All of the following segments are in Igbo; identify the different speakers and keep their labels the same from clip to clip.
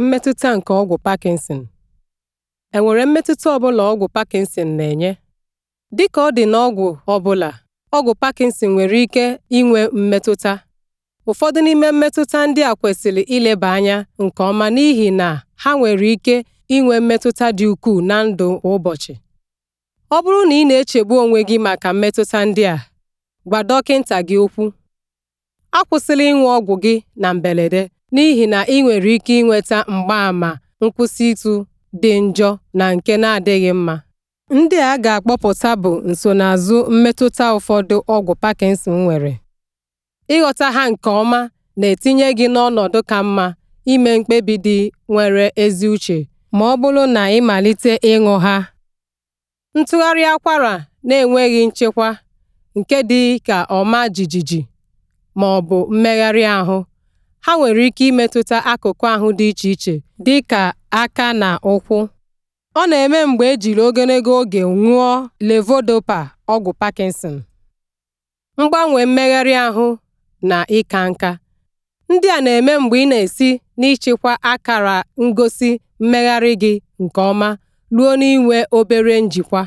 Speaker 1: Mmetụta nke ọgwụ Parkinson enwere mmetụta ọ bụla ọgwụ Parkinson na-enye? Dịka ọ dị n'ọgwụ ọ bụla, ọgwụ Parkinson nwere ike inwe mmetụta. Ụfọdụ n'ime mmetụta ndị a kwesịrị ileba anya nke ọma n'ihi na ha nwere ike inwe mmetụta dị ukwuu na ndụ ụbọchị. Ọ bụrụ na ị na-echegbu onwe gị maka mmetụta ndị a, gwa dọkịta gị okwu. akwụsịla ịṅụ ọgwụ gị na mberede n'ihi na ị nwere ike ịnweta mgbaàmà ịtụ dị njọ na nke na-adịghị mma. Ndị a ga-akpọpụta bụ nsonaazụ mmetụta ụfọdụ ọgwụ Parkinson nwere. Ịghọta ha nke ọma na-etinye gị n'ọnọdụ ka mma ime mkpebi dị nwere ezi uche ma ọ bụrụ na ị malite ịṅụ ha. Ntụgharị akwara na-enweghị nchekwa nke dị ka ọma jijiji ma ọ bụ mmegharị ahụ ha nwere ike imetụta akụkụ ahụ dị iche iche dị ka aka na ụkwụ. ọ na-eme mgbe ejiri ogologo oge ṅụọ levodopa ọgwụ parkinson. mgbanwe mmegharị ahụ na ịka nka. ndị a na-eme mgbe ị na-esi n'ịchịkwa akara ngosi mmegharị gị nke ọma ruo n'inwe obere njikwa.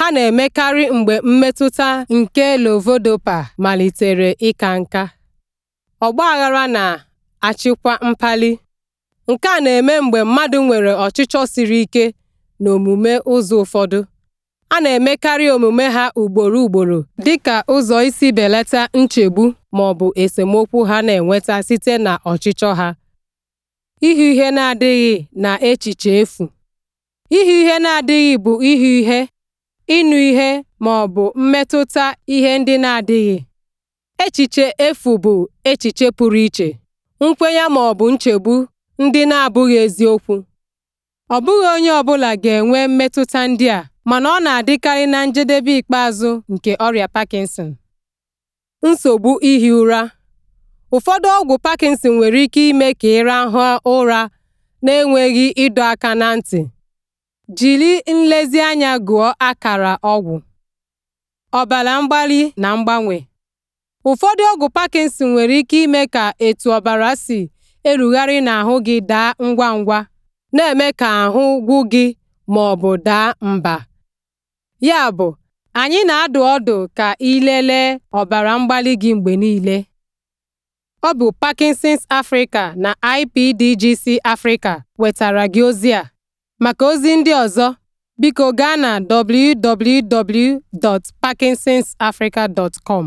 Speaker 1: ha na-emekarị mgbe mmetụta nke lovodopa malitere ịka nka. aghara na-achịkwa mpali. nke a na-eme mgbe mmadụ nwere ọchịchọ siri ike n'omume ụzọ ụfọdụ, a na-emekarị omume ha ugboro ugboro dị ka ụzọ isi belata nchegbu ma ọ bụ esemokwu ha na-enweta site na ọchịchọ ha. Ihu ihe na-adịghị na echiche efu ihu ihe na-adịghị bụ ihu ihe ịnụ ihe ma ọ bụ mmetụta ihe ndị na-adịghị. Echiche efu bụ echiche pụrụ iche, nkwenye ma ọ bụ nchegbu ndị na-abụghị eziokwu. Ọ bụghị onye ọbụla ga-enwe mmetụta ndị a mana ọ na-adịkarị na njedebe ikpeazụ nke ọrịa Parkinson. Nsogbu ihi ụra Ụfọdụ ọgwụ Parkinson nwere ike ime ka ịrahụ ụra ụra enweghị ịdọ aka ná ntị. jiri nlezianya gụọ akara ọgwụ ọbara mgbali na mgbanwe ụfọdụ ọgwụ Parkinson nwere ike ime ka etu ọbara si erugharị n'ahụ gị daa ngwa ngwa na-eme ka ahụ gwụ gị ma ọ bụ daa mba yabụ anyị na-adụ ọdụ ka ị lelee ọbara mgbali gị mgbe niile ọ bụ Parkinson's Africa na IPDGC Africa wetara gị ozi a Maka ozi ndị ọzọ, biko gaa na www.parkinsonsafrica.com.